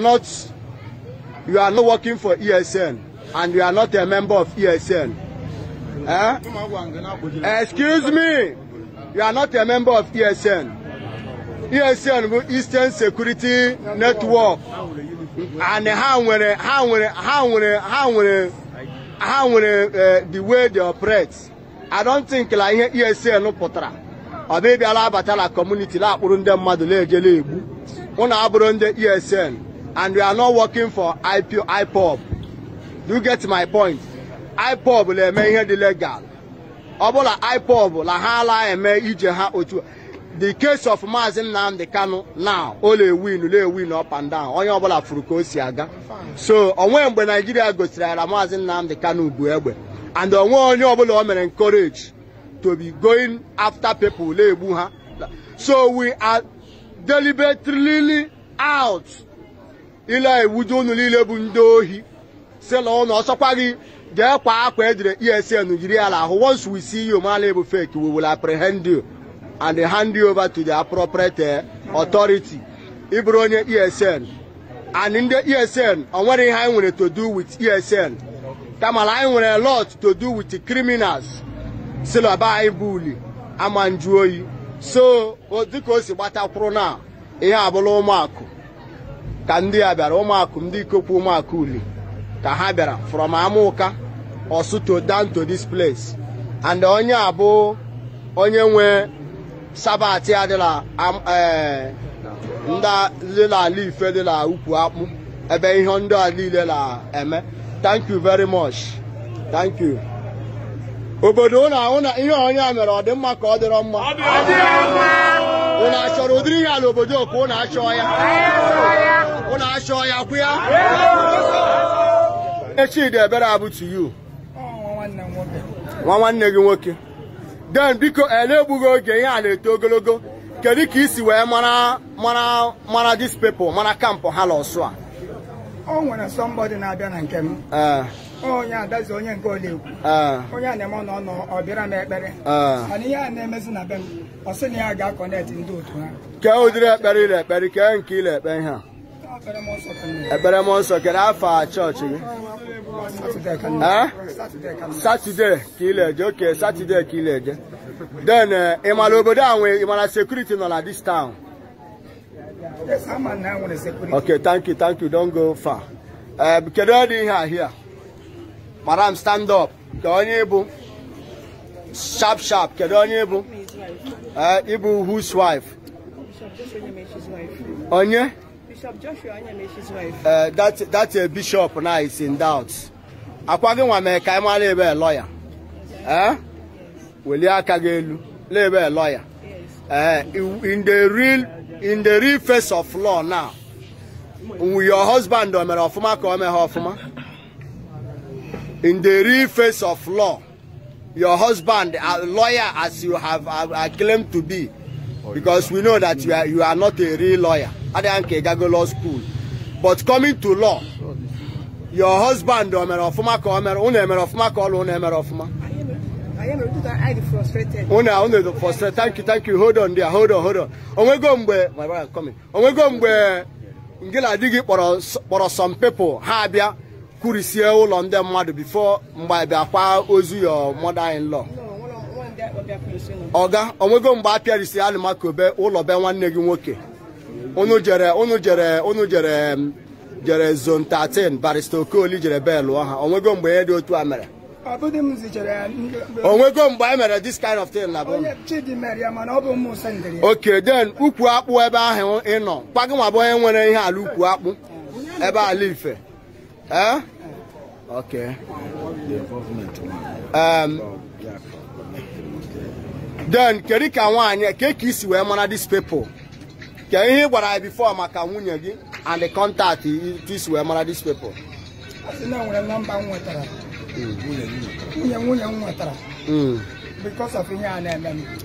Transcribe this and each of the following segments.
not you are not working for ESN and you are not a member of ESN. Eh? Excuse me, you are not a member of ESN. ESN Eastern Security Network. And how when how when how when how when how when uh, the way they operate. I don't think like ESN e no potra. Or maybe Alabatala community la kpụrụ ndị mmadụ na-ejele egbu. Unu abụrụ ndị ESN and we are not working for IPO, IPOB. Do you get my point? IPOB na-eme ihe dị legal. Ọ bụla IPOB na ha ala eme ije ha otu the case of Maazị Nnamdi Kanu now o na-ewin na-ewin up and down onye ọbụla furu ka o si aga so onwe mgbe Naijiria gosiri ara Maazị Nnamdi Kanu bụ egbe and onwe onye ọbụla o mere encourage to be going after people na-egbu ha so we are deliberately out ile iwuju unu niile bụ ndị ohi na ụnụ ọsọkwa gị jee kwa akwa ejire esn jiri ala ahụ once we see you mala bụ fake we will apprehend you and hand you over to the appropriate eh, authority ịbụrụ onye esn and ndị esn onwere ihe anyị nwere to do with esn kamala anyị nwere lot to do with criminals silaba anyị bụ uli ama so dịka o si gbatakwuru na ihe abụla ụmụakụ ka ndị a bịara ụmụakụ ndị ikokwu ụmụakụ uli ka ha bịara from amụka osuto down to this place and onye a bụ onye nwe sabati adịla e, ala ife dịla ukwu akpụ ebe ihe ndị a niile na-eme thank you very much thank you obodo ihe onye a mere ọ dị mma ka ọ dịrọ mma ụlọ achọrọ ụdịrị ihe ala obodo ka unu achọọ ya ụlọ achọ ya kwụ ya Chidi Ebere abụtu yu nwa nwanne gị nwoke den biko na oge ihe a na-eto ogologo kedu ka isi wee mara dis people mara kampụ ha lọsụ a o nwere somebody na-abịa na nke m onye adazi onye nke olekwu onye a na-eme ọnọ ọnọ ọ bịara m ekpere mana ihe a na-emezi na be m ọ sị na ya ga-akọnet ndị otu ha kee ụdịrị ekpere ile ekpere kee nke ile ekpe ihe a ekpere mmụọ nsọ kere afọ chọọchị gị satọde ka ileje oke satọde ka ileje den eh, ịmara obodo a nwe ịmara sekuriti nọ na dis town ok thank you thank you don't go far eh, kedu ọ dị ihe a here madam stand up ka onye ịbụ sharp sharp kedu onye ịbụ ịbụ eh, whose wife onye Bishop Joshua Anyameshi's wife. Uh, that that uh, bishop now is in doubt. Akwaghi nwame ka ịma na-ebe lawyer. Eh? Welie aka gị lawyer. Uh, in the real in the real face of law now. Your husband o mere ọfụma ka o mee ha In the real face of law, your husband, a lawyer as you have, have, uh, claimed to be, because we know that you are, you are not a real lawyer. adịghị nka ịgago law school but coming to law your husband o mere ọfụma ka ọ mere unu emere ọfụma ka ọlụ unu emere ọfụma unu frustrated thank you thank you hold on there hold on hold on onwego mgbe my brother coming onwego mgbe ngị na di gị kpọrọ some people ha abịa kwurisie ụlọ ndị mmadụ bifo mgbe abịa ozu your mother-in-law ọga onwego mgbe a pịarisi alụmakobe ụlọ be nwanne gị nwoke unu jere unu jere unu jere jere zone 13 barista okoli jere bee ọha ha onwego mgbe ihe dị otu a mere onwego mgbe e mere this kind of thing na ok then ukwu akpụ ebe ahụ ị nọ kwa gị nwa bụ onye nwere ihe ala ukwu akpụ ebe ala ife um, then kedu ka nwaanyị ke ka isi wee mara these people ka gwara ya bifo maka nwunye gị and the contact wee mara these hmm. nwunye nwunye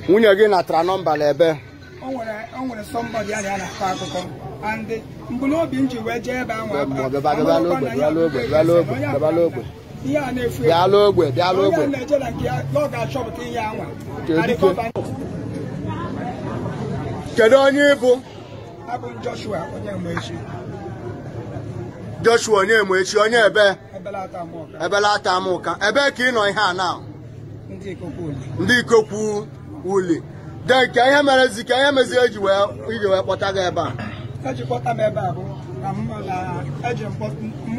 hmm. na gị natara nọmba n'ebe kedu onye ị abụ m Joshua onye Nwechi Joshua onye Nwechi onye ebe ebelata amụka ebe ka ị nọ ihe a na ndị ikokwu uli de ihe merezi ka ihe mezi eji wee kpọta gị ebe a ejikpọta m ebe a bụ na mụ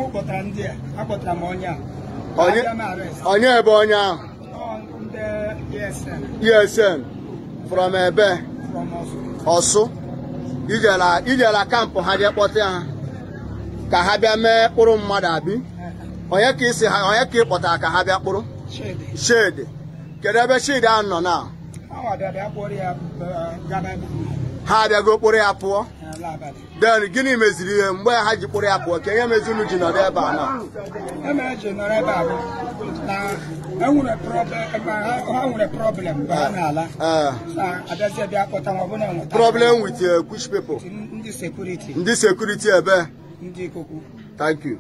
e kpọtara ndị a akpọtara m onye a onye ebe onye ahụ ESN e from ebe ọsụ ijela kampụ ha jee kpọta ya ka ha bịa mee kpụrụ mmadụ abi onye ka isi ha onye ka ị kpọtara ka ha bịa kpụrụ shedi kedu ebe shedi ahụ nọ na ha abịago kpụrụ ya pụọ den gịnị meziri ihe mgbe ha ji ah, ah. kpụrụ ya pụọ ka ihe mezi unu ji nọrọ ebe a na ha nwere problem mgbe ha na-ala problem with which ndị sekuriti ebe thank you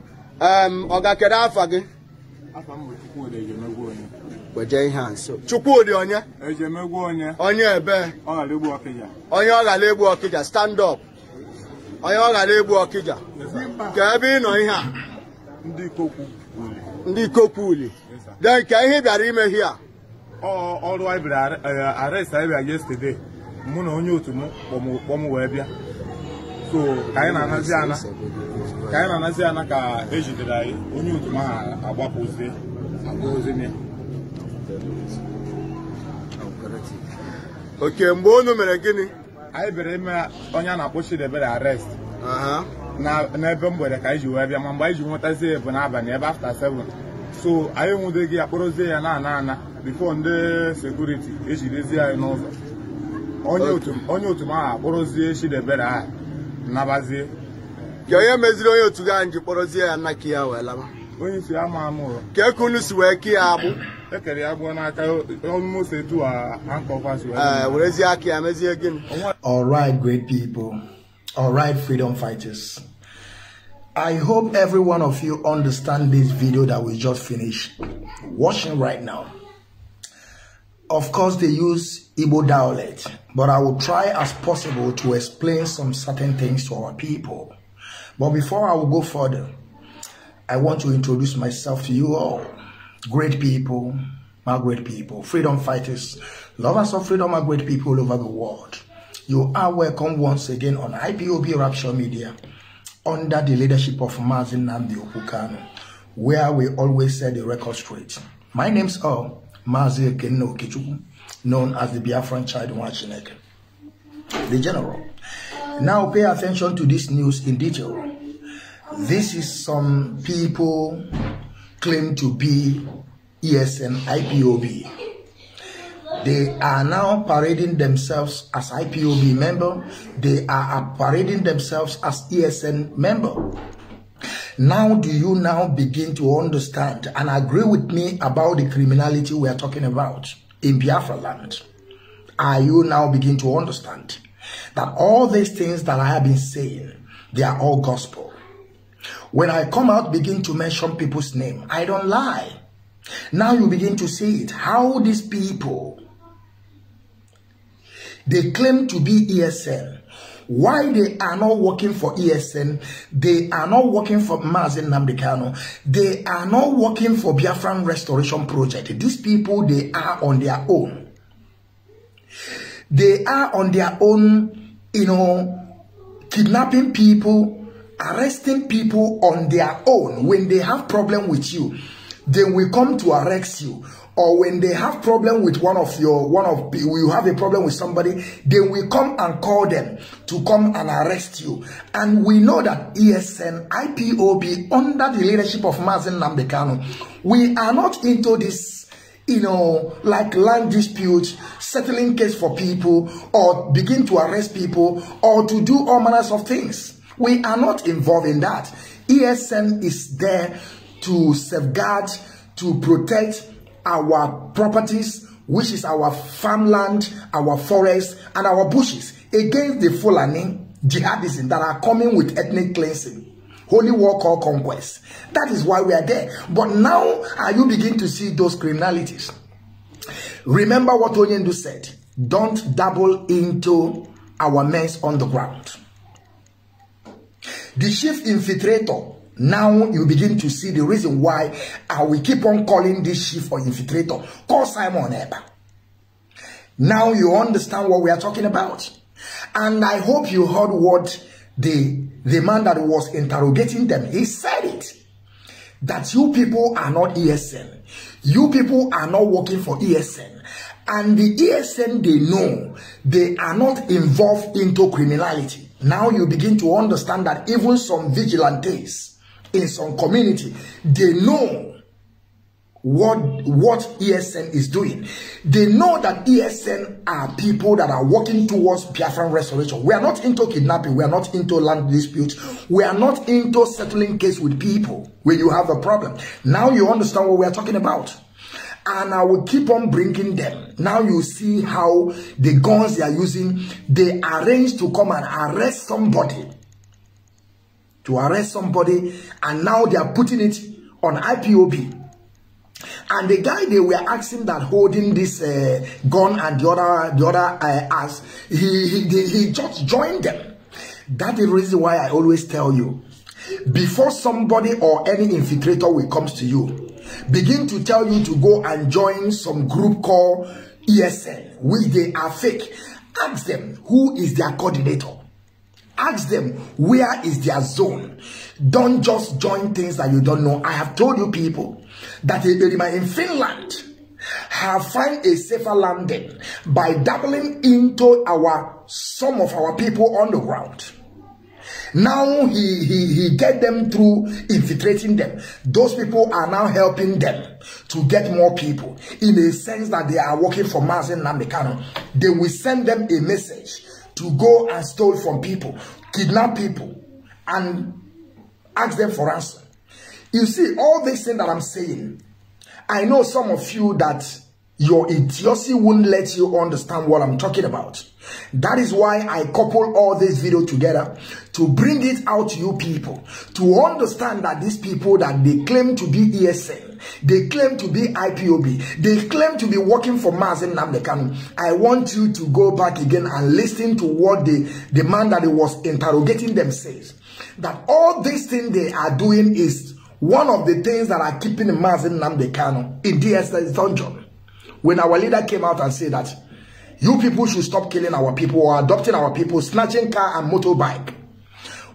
ọ um, ga afa gị Chukwudi onye onye ebe onye ọ ghara egbu ọkịja stand up onye ọ ghara egbu ọkịja ka ebe ị nọ ihe a ndị ikokwuli de nke ihe bịara ime ihe a ọrụ anyị bịara e, arrest anyị yesterday mụ na onye otu m kpọm wee bịa so ka anyị na-anazi ana ka anyị na-anazi ana ka ejidere anyị onye otu m ahụ agbapụzie agbapụzie ya oke mgbe unu mere gịnị anyị bịara ime onye a na-akpọ debere arrest n'ebe mgbede ka anyị ji wee bịa ma mgbe anyị ji nwetazie bụ n'abalị ebe afta seven. so anyị gị akpọrọzie ya na ana ana bifo ndị sekuriti ejirizie anyị n'ụzọ onye otu m ahụ akpọrọzie Chidebere ahụ nabazie onye meziri onye otu gị anyị ji kpọrọzie ya nna ki ya wee laba onye isi ama amụrụ ka eke unu si wee ki ya agbụ Eh, all right great people all right freedom fighters I hope every one of you understand this video that we just finished watching right now. Of course, they use Igbo dialect, but I will try as possible to explain some certain things to our people. But before I will go further, I want to introduce myself to you all great people my great people. Freedom fighters, lovers of freedom my great people all over the world. You are welcome once again on IPOB Rapture Media under the leadership of Marvin Nambi Okukano, where we always set the record straight. My name's O Mazi Ekenno Okechukwu, known as the Biafran Child Wachinek, the General. Now pay attention to this news in detail. This is some people claim to be ESN IPOB. They are now parading themselves as IPOB member. They are parading themselves as ESN member. Now do you now begin to understand and agree with me about the criminality we are talking about in Biafra land? Are you now begin to understand that all these things that I have been saying, they are all gospel? When I come out, begin to mention people's name. I don't lie. Now you begin to see it. How these people, they claim to be ESN. Why they are not working for ESN, they are not working for Mazin Namdekano, they are not working for Biafran Restoration Project. These people, they are on their own. They are on their own, you know, kidnapping people, arresting people on their own when they have problem with you they will come to arrest you or when they have problem with one of your one of you have a problem with somebody they will come and call them to come and arrest you and we know that esn ipob under the leadership of mazin nambekano we are not into this you know like land dispute settling case for people or begin to arrest people or to do all manners of things We are not involved in that. ESN is there to safeguard, to protect our properties, which is our farmland, our forests, and our bushes against the Fulani jihadists that are coming with ethnic cleansing. Holy war called conquest. That is why we are there. But now are you begin to see those criminalities? Remember what Onyendu said. Don't dabble into our mess on the ground. The chief infiltrator now you begin to see the reason why I will keep on calling this chief or infiltrator. Call Simon Eber. Now you understand what we are talking about. And I hope you heard what the, the man that was interrogating them, he said it. That you people are not ESN. You people are not working for ESN. And the ESN, they know they are not involved into criminality. Now you begin to understand that even some vigilantes in some community, they know what what ESN is doing. They know that ESN are people that are working towards Biafran restoration. We are not into kidnapping. We are not into land disputes. We are not into settling case with people when you have a problem. Now you understand what we are talking about. and I will keep on bringing them. Now you see how the guns they are using, they arrange to come and arrest somebody. To arrest somebody, and now they are putting it on IPOB. And the guy they were asking that holding this uh, gun and the other the other uh, ass, he, he he just joined them. That is the reason why I always tell you, before somebody or any infiltrator will comes to you, begin to tell you to go and join some group called ESL, which they are fake. Ask them who is their coordinator. Ask them where is their zone. Don't just join things that you don't know. I have told you people that in Finland have find a safer landing by doubling into our some of our people on the ground. Now he, he, he get them through infiltrating them. Those people are now helping them to get more people in a sense that they are working for Mazen Namekano. They will send them a message to go and steal from people, kidnap people, and ask them for ransom. You see, all these things that I'm saying, I know some of you that Your idiocy won't let you understand what I'm talking about. That is why I couple all this video together to bring it out to you people to understand that these people that they claim to be ESL, they claim to be IPOB, they claim to be working for Mazen Namdekan. I want you to go back again and listen to what the, the man that was interrogating them says. That all this thing they are doing is one of the things that are keeping Mazen Namdekan in DSS dungeon. when our leader came out and said that you people should stop killing our people or adopting our people, snatching car and motorbike.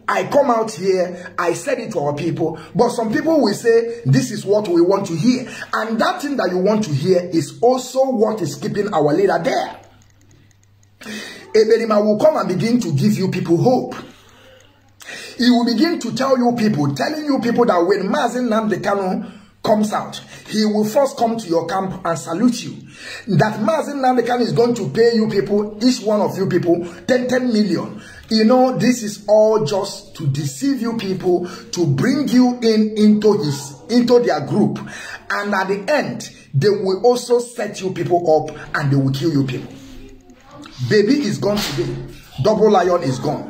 I come out here, I said it to our people, but some people will say, this is what we want to hear. And that thing that you want to hear is also what is keeping our leader there. Eberima will come and begin to give you people hope. He will begin to tell you people, telling you people that when Mazin Namdekano comes out, he will first come to your camp and salute you. That Mazin Nandekan is going to pay you people, each one of you people, 10, 10 million. You know, this is all just to deceive you people, to bring you in into his, into their group. And at the end, they will also set you people up and they will kill you people. Baby is gone today. Double Lion is gone.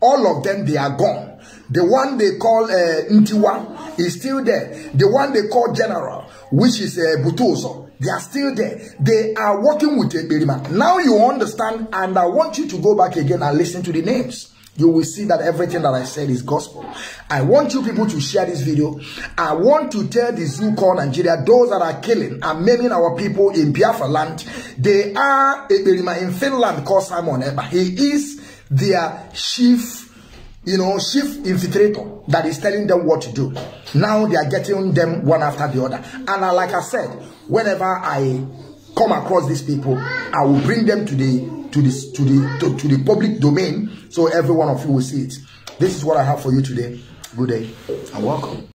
All of them, they are gone. The one they call uh, Ntiwa, is still there. The one they call general, which is uh, Butoso, they are still there. They are working with Eberima. Now you understand, and I want you to go back again and listen to the names. You will see that everything that I said is gospel. I want you people to share this video. I want to tell the call Nigeria, those that are killing and maiming our people in Biafra land, they are Eberima in Finland called Simon Eber. He is their chief you know, chief infiltrator that is telling them what to do. Now they are getting them one after the other. And like I said, whenever I come across these people, I will bring them to the to this to the to, to the public domain so every one of you will see it. This is what I have for you today. Good day and welcome.